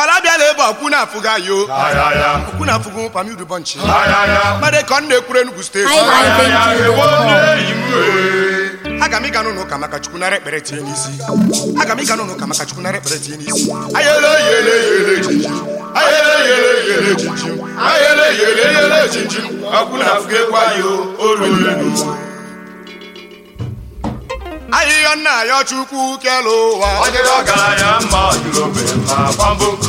ọlabiala ebe ọkwụna afụga yo ọkwụna afụga ụpam iru mmadụ ka ọ na-ekwuru Enugu steeti e. aga m ịga n'ụlọ maka chukwu nara ekpere tinye n'isi aga m ịga n'ụlọ maka chukwu nara ekpere tinye n'isi ayele yele yele jinjim ekwe ayo ahịhịa nna ya chukwu kere ụwa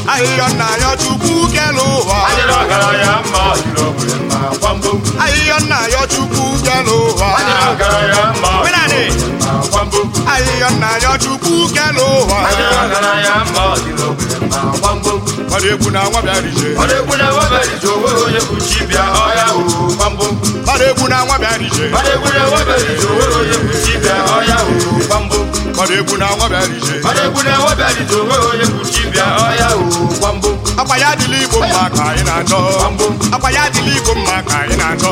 ahịhịa nna ya chukwu kere ụwa ahịhịa nna ya chukwu kere ụwa ahịhịa nna ya chukwu kere ụwa gbara na nwa bịara ije na nwa na nwa akwa ya igbo mma ka anyị na-adọ akwa ya igbo mma ka anyị na-adọ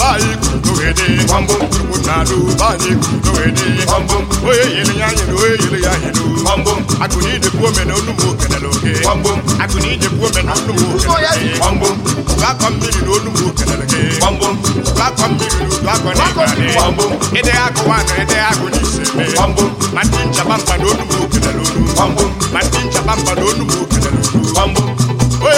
be anyị kudoghede gbamgbam tupu na alụ be anyị kudoghede gbamgbam onye yere ya nyere onye yere ya nyere gbamgbam akụni idekwu omena onugbu okenela oke gbamgbam akụni idekwu omena onugbu okenela oke gbamgbam ụgakọ mmiri na onugbu okenela oke gbamgbam ụgakọ mmiri na udu akọ na ịgbara ne gbamgbam ede akụwa akụ na ise eme gbamgbam ma ndị na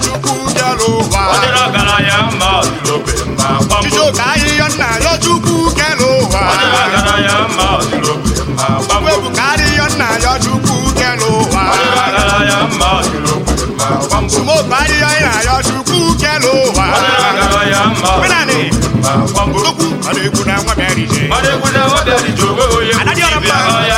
chukwu bịara ụwa Chijioke ahịhịa nna ya chukwu kere ụwa Igwe bụ ka ahịhịa nna ya chukwu kere ụwa Sumoke ahịhịa nna ya chukwu kere ụwa Tokwu ọ na-ekwu na nwa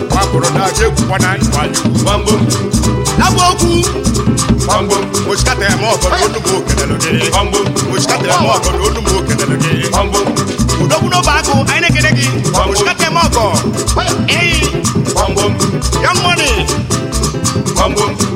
kwuru na aja egwukwa na gbambo okwu gbambo mochikata ya ma ọkọrọ onugbu okelelu gị gbambo mochikata ya ma ọkọrọ onugbu udokwudo bụ akụ anyị na gị mochikata ya ma eyi ya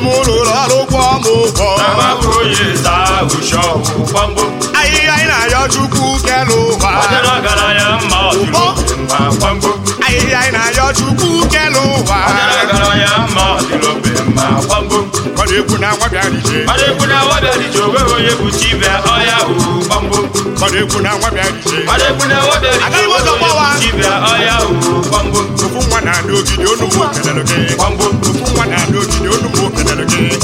m lụrụ ọrụ kwọ m ụgwọ anyị anyị na-ayọ chukwu kelụ ụwa anyị anyị na-ayọ chukwu kelụ ụwa na nwa bịarije ọdịkwu na nwa onye gị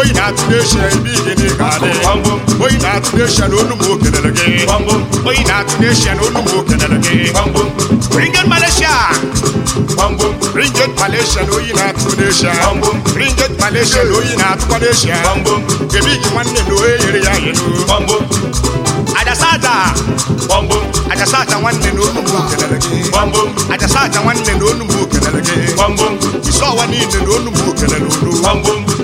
onye na-atụnye eshia ebe igene ga-adị onye na-atụnye eshia na olu m okelere gị onye na-atụnye eshia na olu m okelere gị ringet malaysia ringet malaysia na oyi na-atụkwana eshia ringet malaysia na oyi na-atụkwana eshia ebe igi nwanne na onye nyere ya yelu ajasata ajasata nwanne na olu m okelere gị ajasata nwanne na olu m okelere gị isọwa niile na olu m okelere olu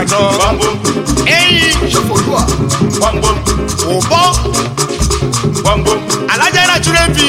àjọ. ẹyin òbọ alájà náà túrẹ́ bí.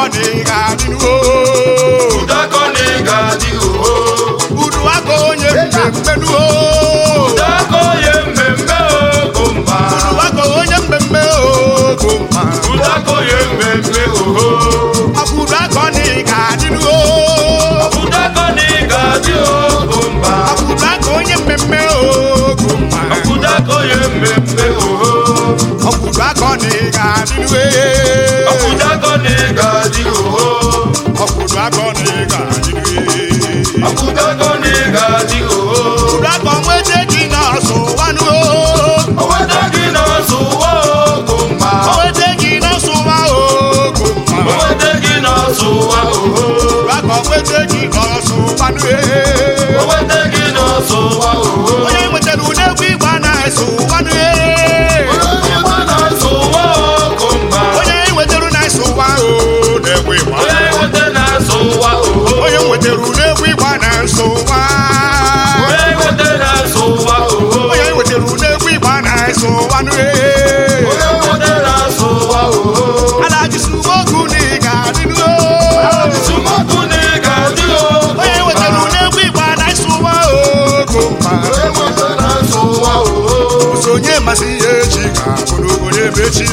ọ na ị ga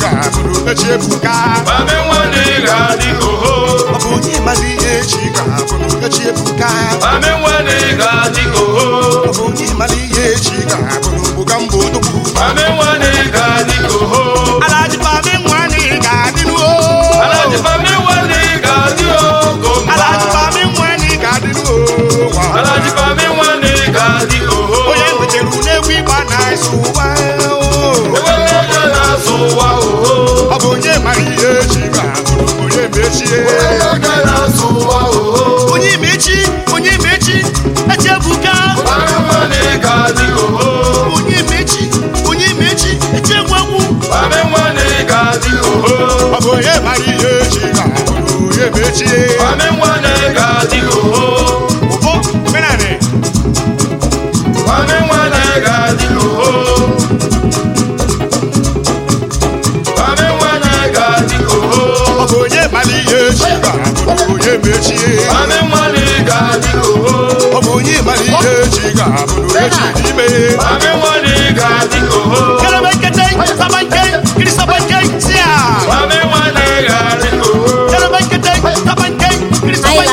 ga-abụrụ echi ebuka ọ bụ onye mazi ihe echi ga-abụrụ echi ebuka ọ bụ onye mazi ihe echi ga mbụ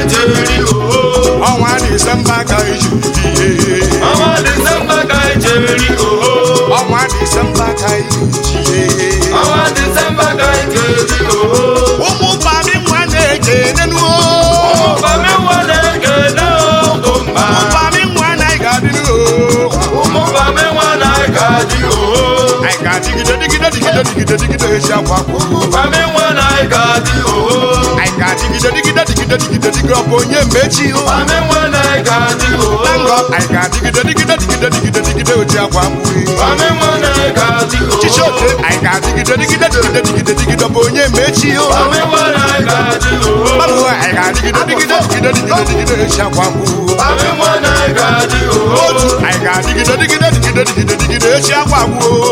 ijeri ooo ọnwa disemba ka ijeri ihe ọnwa disemba ka ijeri ooo ọnwa disemba ka ijeri ihe ọnwa disemba ka ooo ụmụ bami nwa na-ege nenu ụmụ ụmụ bami na nwa na-ega dị ooo anyị ga-adịgide digide digide digide akwa akwa nwa na-ega dị ooo ga-adịgide dịgide dịgide dịgide dịgị ọ bụ onye mgbe echi anyị ga-adịgide dịgide dịgide dịgide dịgide oji akwa mkpuri ọchịchị anyị ga-adịgide dịgide dịgide dịgide dịgide ọ bụ onye mgbe echi mmadụ anyị ga-adịgide dịgide dịgide dịgide dịgide oji akwa mkpuri otu anyị ga-adịgide dịgide dịgide dịgide dịgide echi akwa mkpuri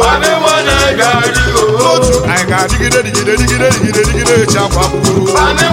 otu anyị ga-adịgide dịgide dịgide dịgide dịgide echi akwa mkpuri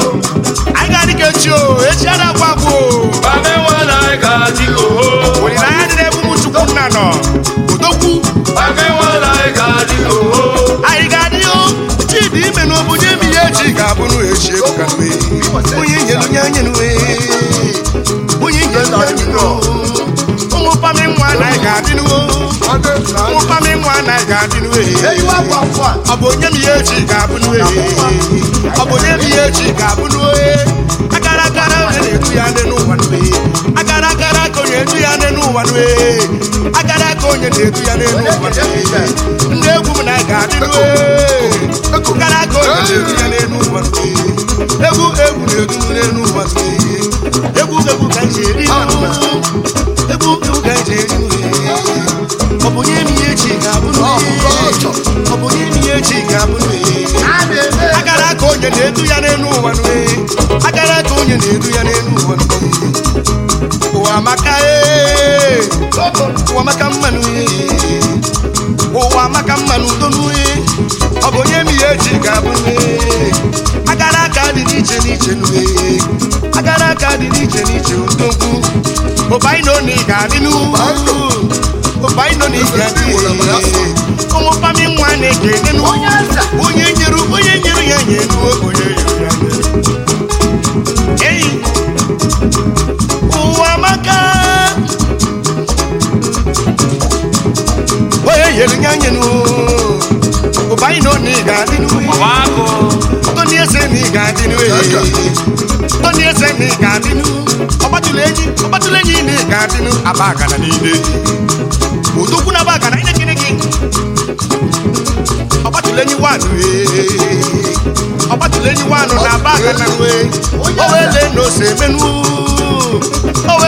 echi o echi adakwa bụ olilanya dị n'ebe ụmụ chukwu nna nọ odogwu anyị ga-adịghị chidi ime na obodo emi ya echi ga-abụrụ echi ebuka mgbe onye nyelu nye onye nwe onye nyelu nye ụmụ pami nwa na anyị ga-adịnuo n'uwe. pami nwa na anyị ga-adịnuo ọ bụ onye m ya echi ga-abụnuo e. ọ bụ onye m ya echi ga-abụnuo e. akara ya nne n'ụwa ya nne n'ụwa na-eju ya nne n'ụwa nwe ndị egwu na ga-adị aka onye ya nne n'ụwa egwu egwu na egwu egwu ka nje eri ka ọ bụ nye m ihe nye onye na-eru ya n'elu ụwa ụwa amaka e, ụwa maka mmanụ e, ụwa maka mmanụ udo n'uyi e. ọ bụ onye mi ya eji ga-abụ agara aka dị n'iche n'iche n'uye agara aka dị n'iche n'iche ndogwu ụbaino na ị ga-adị n'ugwu ụbaino na ị ga-adị ụmụ pami nwa na-ege onye nyere onye nyere ya nye enuo anyịnụ e. anyị e. na onye ga-adị n'uwe onye eze na ị ga-adị eze na ị ga-adị n'u ọgbatụla e. enyi ọgbatụla enyi na ị ga-adị n'u aba na aba agana ine gịnị gị ọgbatụla enyi ọgbatụla enyi na aba o na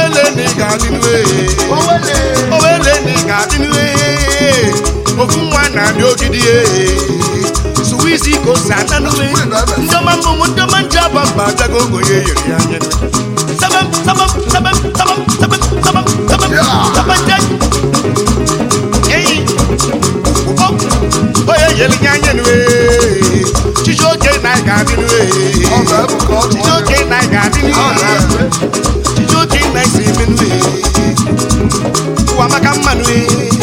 ose na ga-adị na-abịa ogidi suwizi ka ose ata n'ume ndọba mmụmụ ndọba nje aba mba agago ogonye yiri ya anya onye yeli ya anya nue chiji oge na ị ga-adị nue chiji oge na ị ga-adị nue chiji oge na ị si eme nue maka mmanụ ee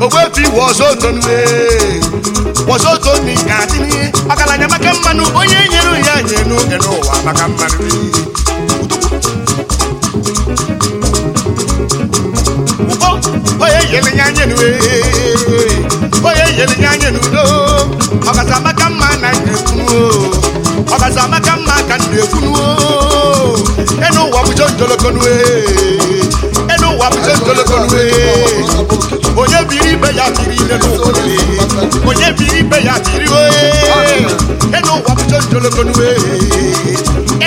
ogwefi was otonwe ga adịn'ihe ọgaranya maka mmanụ onye nyere ya nye n'oge n'ụwa maka mmanụ onye nyere ya nye onye nyere ya nye n'udo ọgaza maka mma na nyekwuo ọgaza maka mma ka nna ekwunuo enu ụwa bụ jonjolokonue n'ụwa bute ntolokolu onye biri ibe ya biri ile biri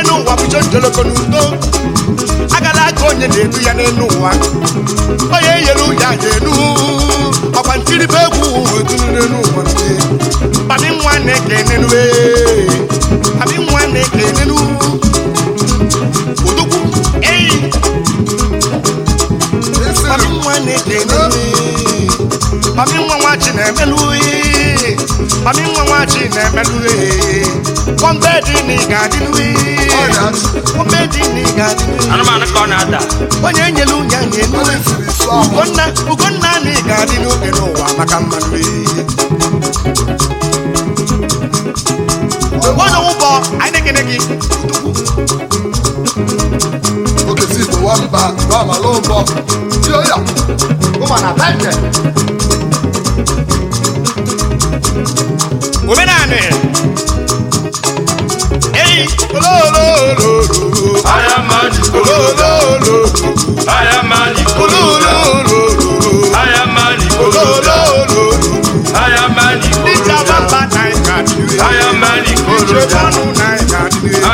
ụwa bute ntolokolu enu agala onye na ya n'elu ụwa onye nyere ụya ga-enu ọkwa n'elu ụwa mami nwa nwachi na-emelu ihe mami nwa nwachi na-emelu ihe kọmbeji na ị ga-adịnu ihe kọmbeji na ị ga onye enyelu nye nye ugonna ugonna n'oge n'ụwa maka mmanụ ihe na omenanị eyi ololololo aya maji ololololo aya maji ololololo aya maji ololololo aya maji dịka bamba na ịka dịrị aya maji koroja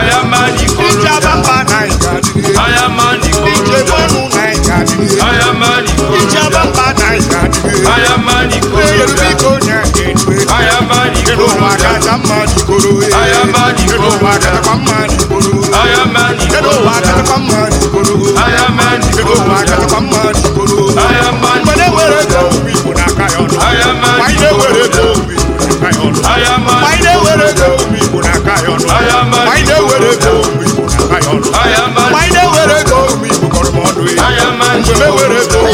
aya maji koroja dịka bamba na ịka I am money, I am kacha mma n'ikoro kedu ụwa katakwa mma n'ikoro kedu ụwa katakwa mma n'ikoro kedu ụwa katakwa mma n'ikoro mgbe na-ewere ego obi igbo n'aka ya ọnụ anyị na-ewere ego obi igbo n'aka ya ọnụ anyị na-ewere ego kọrọ m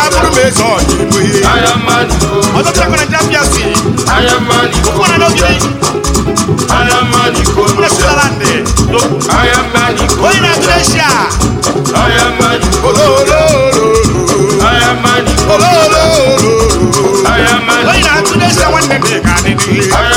ya bụrụ ma eze ọchịbụghị ọtụtụ akwana ndị apịa si ụkwụ na onye na-atụrụ eshia onye na ga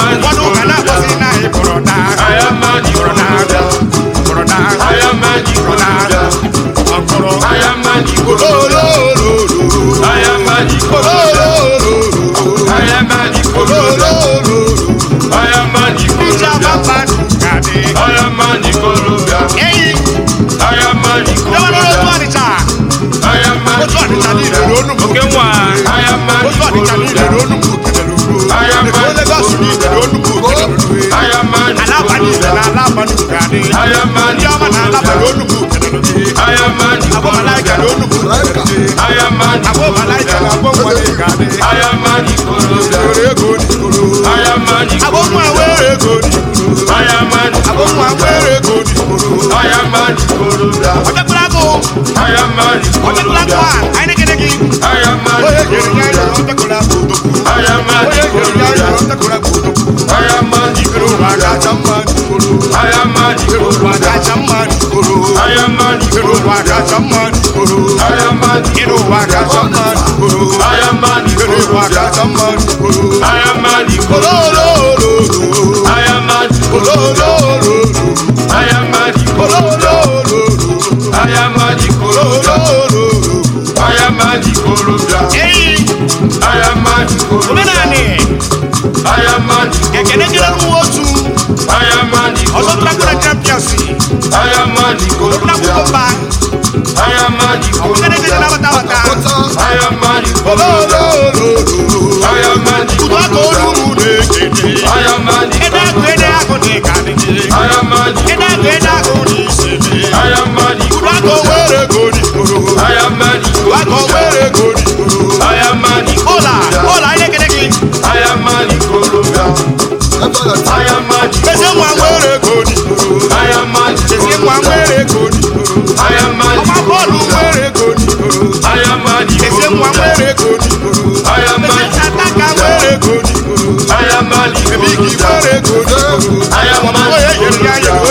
Oke nwa otu abanise na ala na ala abanye onugbu na a abụ a na gị ya a ọ bịakwara gụ onye nyere ya ya ọ Iruwa kacha mma rigoro Iruwa kacha mma rigoro Iruwa kacha mma rigoro Iruwa kacha mma rigoro Ololololo ọlọ́dúnlágbọ́dá champions a a ụfọdụ ka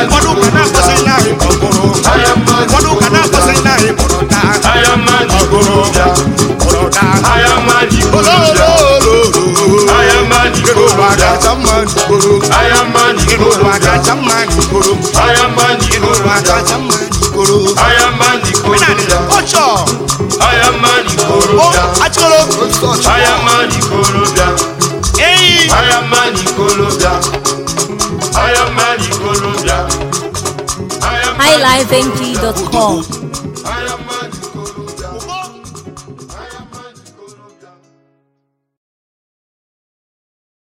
na-amasị ụfọdụ ụka na-akpọsị nna anyị mụrụ na ọgụrụbịa mụrụ na olololo kacha mma n'ikporo ụwa kacha mma n'ikporo ụwa kacha mma n'ikporo ọchọ achọrọ obi realliveNG.com.